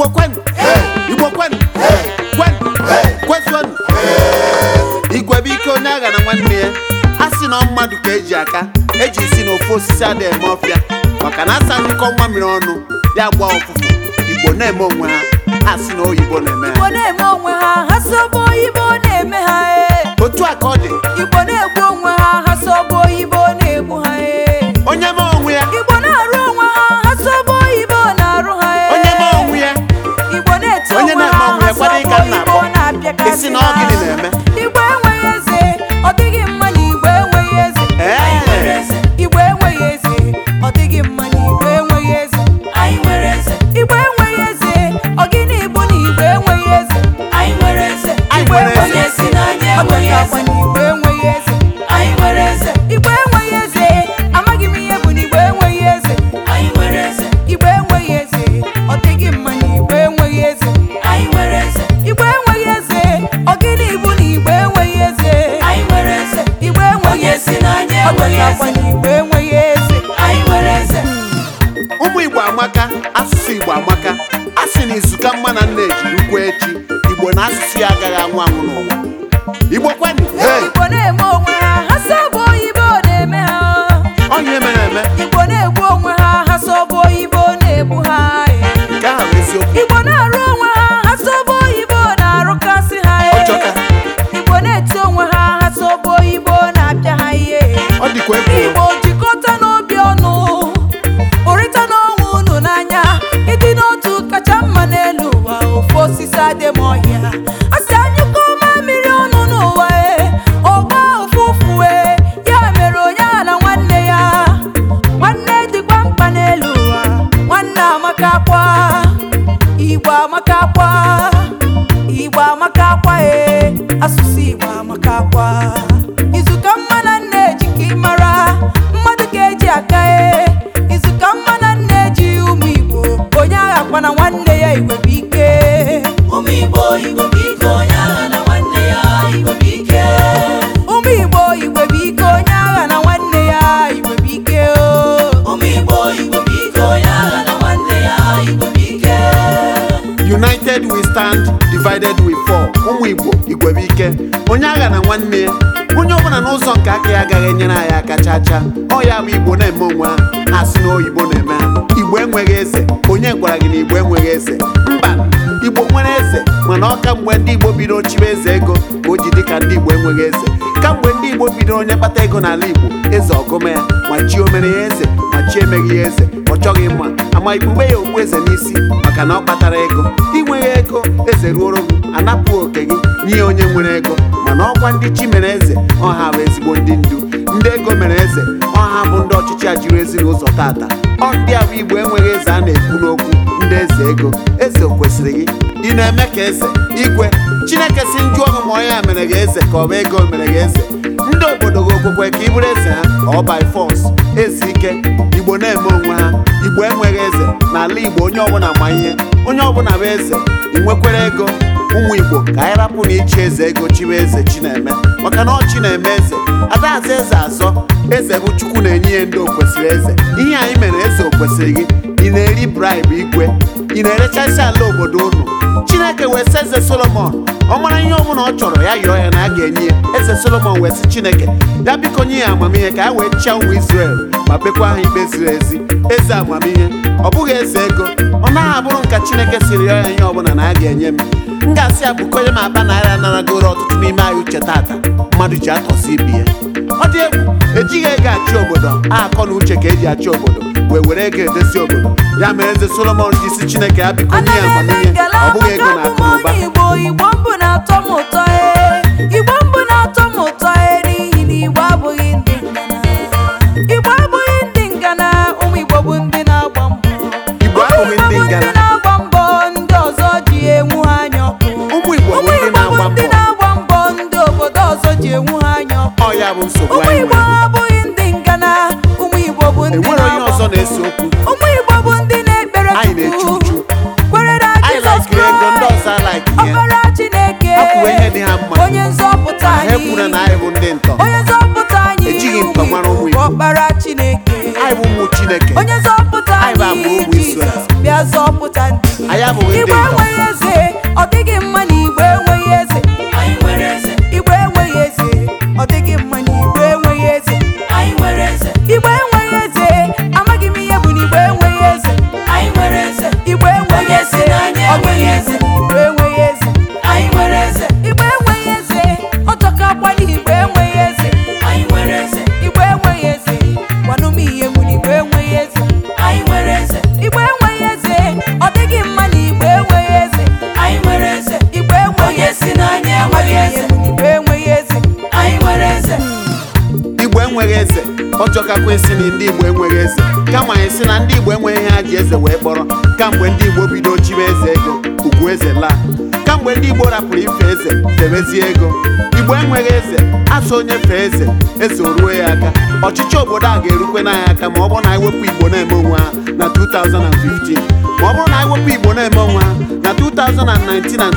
Igbo kwenu Igbo kwenu kwenu kwezuonu igwe bụ ike onye agha na nwanne ya a sị na mmadụ ka eji aka eji si n'ofe osisi ada eme ọfịa maka na asa nkọ nwa mmiri ọnụ ya gba ọfụfụ Igbo na-eme onwe ha ha sị na bụ oyibo na-eme ha otu a ka ọ dị Igbo na-egbu onwe ha Igbo amaka asụsụ Igbo amaka a sị na izuka mma na nna ejiri ukwu echi Igbo na asụsụ ya agaghị anwụ anwụ n'ụwa Igbo kwenu asụsụ Igbo maka akwa izuka mma na eji ka ị mara mmadụ ka eji aka e izuka mma na eji ụmụ Igbo onye agha akwa na nwanne ya Igbo ike ụmụ Igbo Igbo ike onye agha na nwanne ya Igbo ike ụmụ Igbo Igbo ike onye agha na nwanne ya Igbo ike ụmụ Igbo Igbo ike onye agha na nwanne ya Igbo ike United we stand divided we fall ụmụ igbo igwebe onye agha na nwanne ya onye ọbụla n'ụzọ nke aka ya agaghị enyere anyị aka chaa chaa ọ ya bụ igbo na-eme onwe ha ha si na oyibo na-eme igbo enweghị eze onye gwara gị na igbo enweghị eze mba igbo nwere eze mana ọka mgbe ndị igbo bido chibe eze ego ka o ji dị ka ndị igbo enweghị eze kamgbe ndị igbo bido onye kpata ego n'ala igbo eze ọgụme ya ma chi omere ya eze ma chi emeghị ya eze ọ chọghị mma ama ikpube ya okpu eze n'isi maka na ọ kpatara ego inweghị ego eze ruoro m anapụ oke gị nye onye nwere ego mana ọkwa ndị chi mere eze ọha bụ ezigbo ndị ndu ndị ego mere eze ọha bụ ndị ọchịchị a jiri ezinụlọ tata ọ ndị ahụ igbo enweghị eze a na-ekwu n'okwu ndị eze ego eze o kwesịrị gị ị na-eme ka eze igwe chineke si njụ ọhụ onye a mere gị eze ka ọ bụ ego mere gị eze ndị obodo gị okwukwe ka ị eze ha ọ by ezi ike igbo na-eme onwe ha igbo enweghị eze n'ala igbo onye ọbụla ma ihe onye ọbụla bụ eze inwekwere ego ụmụ igbo ka anyị rapụ na ichi eze ego chiwe eze chineme maka na ọ chi na-eme eze adaza eze azọ eze bụ chukwu na-enye ya ndị okwesịrị eze ihe anyị mere eze okwesịrị gị ị na-eri bribe igwe ị na isi ala obodo unu chineke wee sị eze solomon ọ mara ihe ọbụla ọ chọrọ ya yọọ ya na a ga-enye ya eze solomon wee sị chineke ya biko nye ya amamihe ka ya wee chịa ụmụ israel ma kpekwa ha ikpe ziri ezi eze amamihe ọ bụghị eze ego ọ naghị abụrụ nka chineke sịrị yọọ ya ihe ọbụla na a ga-enye m m ga-asị ya bụkonye m akpa naira naragoro ọtụtụ n'ime anyị uche taata mmadụ ji atọsi ibi ya ọ dị egwu ejighị ego achị obodo akọ na uche ka eji achị obodo wee were ga edozi obodo ya mere eze solomon ji isi chineke ya biko nye amamihe ọ bụghị ego na akụ ụba chineke onye zọpụta anyị bịa zọpụta ndị igbo ụka esi na ndị Igbo enweghị eze kama esi na ndị Igbo enweghị ha ji eze wee kpọrọ kamgbe ndị Igbo bido chibe eze ego ugwu eze laa kamgbe ndị Igbo rapụrụ ife eze debezie ego Igbo enweghị eze asụ onye fee eze eze o ruo ya aka ọchịchị obodo a ga-erukwe na aka ma ọ bụrụ na anyị wepụ Igbo na-eme onwe ha na 2015 ma ọ bụrụ na anyị wepụ Igbo na-eme onwe ha na 2019 na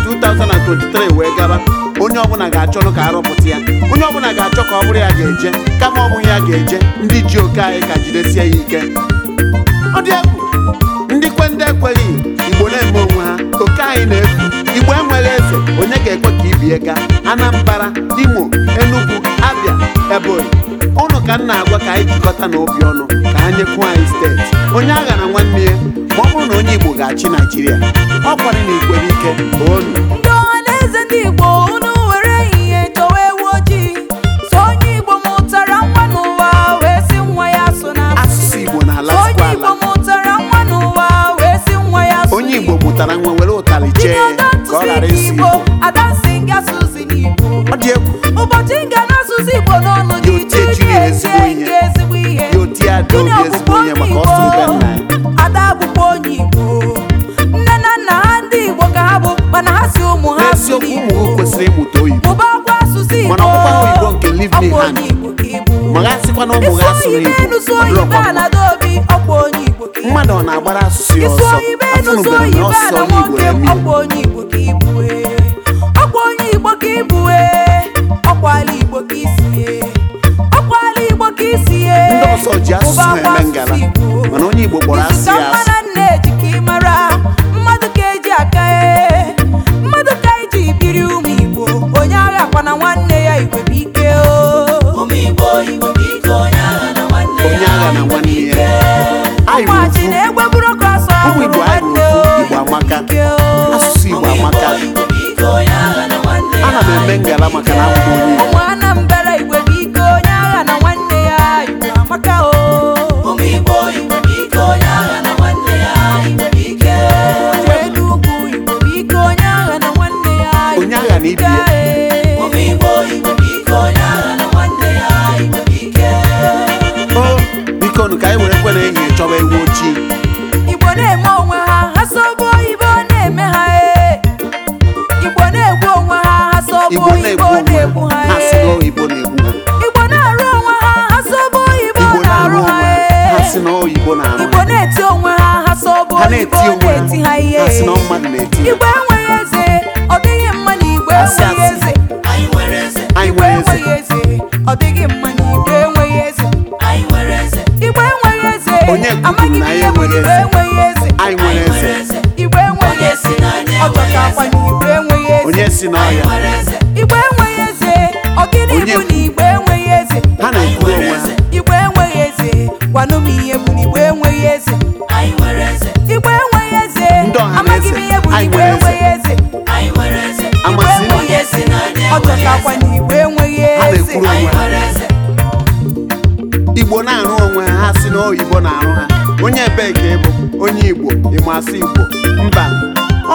2023 wee gaba onye ọbụla ga-achọrọ ka arọpụta ya onye ọbụla ga-achọ ka ọ bụrụ ya ga-eje kama ọ bụghị ya ga-eje ndị ji oke anyị ka jidesie ya ike ọ dị egwu ndị ndị ekweghị Igbo na-eme onwe ha oke anyị na-efu Igbo enwere eze onye ga-ekwe ka ibie gaa Anambra Imo Enugu Abia Ebonyi ka nna agwa ka anyị jikọta n'obi obi ọnụ ka ha nyekwu anyị steeti onye agha na nwanne ya ma ọ bụrụ na onye Igbo ga-achị Naijiria ọ kwari na ikwere ike onu mmadụ ọ na-agbara asụsụ ya ọsọ afụnubere na ọsọ Igbo eme onye ka ibue ọkwala e. e. e. ndị ọsọ ji asụsụ eme ngala mana onye Igbo kpọrọ asị ya asụ na-eme ngala maka na abụ onye Igbo Igbo na-arụ onwe ha ha oyibo na-arụ ha Igbo na-eti onwe ha ha sobe oyibo na-eti ha ihe Igwe enweghị eze ọ dịghị mma na Igbo enweghị eze enweghị eze ọ dịghị mma na Igbo enweghị eze Igbo enweghị eze amaghị m ihe bụ enweghị eze Igbo enweghị eze na Igbo enweghị eze Igbo enweghị onye bụ na igbe enweghị eze ha na-ekwu onwe ha igbe enweghị eze gwanụ m ihe bụ na igbe enweghị eze igbe enweghị eze amaghị m ihe bụ na igbe enweghị eze igbe enweghị eze ọ chọtakwa na igbe enweghị eze igbo na-arụ onwe ha si na oyibo na-arụ ha onye ebee ka ịbụ onye igbo ịmasị igbo mba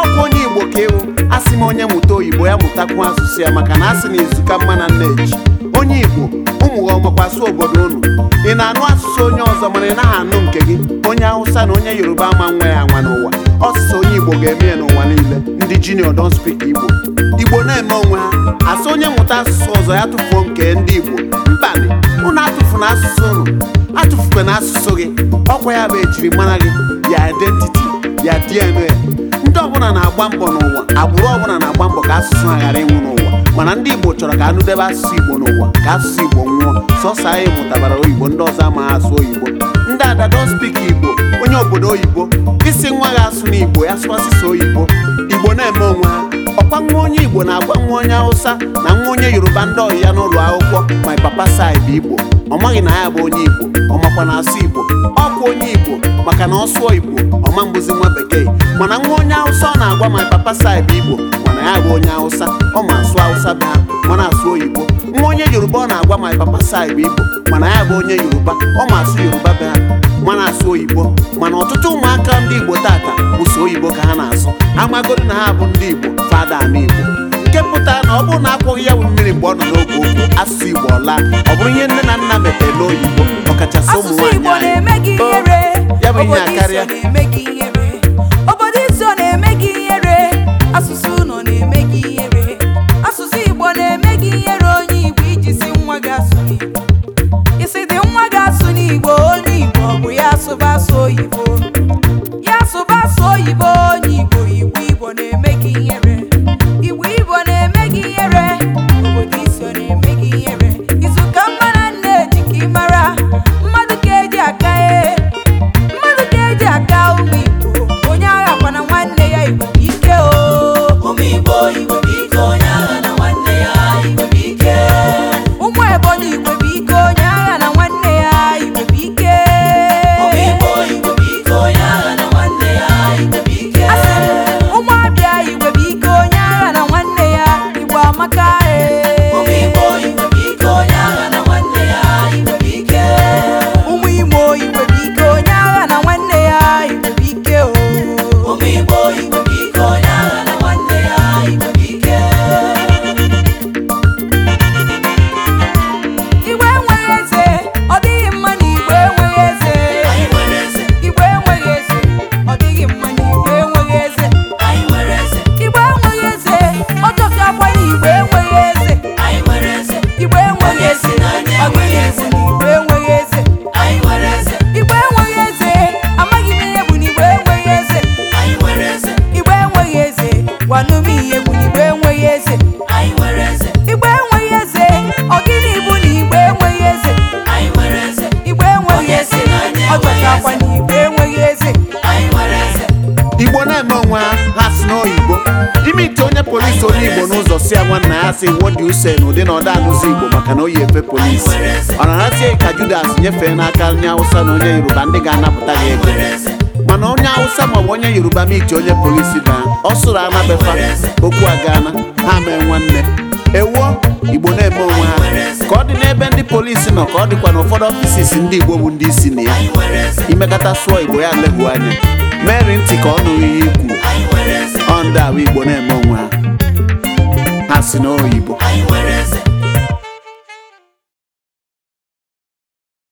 ọkụ onye igbo ka ewu asị m onye mụta oyibo ya mụtakwu asụsụ ya maka na asị na izuka mma na nneji onye igbo ụmụ ọmakwasu obodo unu ị na-anụ asụsụ onye ọzọ mana ị naghị anụ nke gị onye hausa na onye yoruba ama nwa ya anwa n'ụwa ọsụsụ onye igbo ga-eme ya n'ụwa niile ndị junior don speak igbo igbo na-eme onwe ha asị onye mụta asụsụ ọzọ ya tụfuo nke ndị igbo mbanị atụfu atụfuna asụsụ unu atụfukwe na asụsụ gị ọkwa ya bụ ejiri mara gị ya identity ya DNA ndị ọbụla na-agba mbọ n'ụwa agbụrụ ọbụla na-agba mbọ ka asụsụ ha ghara ịnwụ n'ụwa mana ndị Igbo chọrọ ka debe asụsụ Igbo n'ụwa ka asụsụ Igbo nwụọ sọsọ anyị mụtabara oyibo ndị ọzọ ama asụ oyibo ndị ada don Igbo onye obodo oyibo isi nwa ha asụ n'Igbo ya sụọ asụsụ oyibo Igbo na-eme onwe ha ọkwa nwa onye Igbo na-agwa nwa onye Hausa na nwa onye Yoruba ndị ọhịa n'ụlọ akwụkwọ my papa side Igbo ọ maghị na ya bụ onye Igbo ọ makwa na asụ Igbo ọ bụ onye Igbo maka na ọ sụọ Igbo ọma mbụzi nwa bekee mana nwa onye awụsa ọ na-agwa my papa side Igbo mana ya bụ onye awụsa ọ ma asụ awụsa be ha mana asụ oyibo nwa onye Yoruba ọ na-agwa my papa side Igbo mana ya bụ onye Yoruba ọ ma asụ Yoruba bụ ha mana asụ oyibo mana ọtụtụ ụmụaka ndị Igbo tata bụ so oyibo ka ha na-asụ amagoro na ha bụ ndị Igbo fada na Igbo nke pụta na ọ bụrụ na akwụghị ya mmiri mgbe ọ nọ n'oge okwu asụsụ Igbo ọla ọ bụrụ ihe nne na nna mepere n'oyibo ọkachasị ụmụ nwaanyị ya bụ ihe a karịa na-asị what do you say n'ụdị na ọda anụzi Igbo maka na o yi efe polisi ọ na-arasịghị ka Judas nyefee n'aka onye Awụsa na onye Yoruba ndị ga-anapụta gị ego mana onye Awụsa maọbụ onye Yoruba ma iji onye polisi daa ọ sụrụ anabefa okwu na ha mee nwanne ewuo Igbo na-eme onwe ha ka ọ dị n'ebe ndị polisi nọ ka ọ dịkwa na ụfọdụ ọfisis ndị Igbo bụ ndị isi na ya imekata sụọ Igbo ya legbuo anya meri ntị ka ọ nụrụ ihe ikwu ọ ndị Igbo na-eme onwe ha Asị n'oyi bụ anyị nwere eze.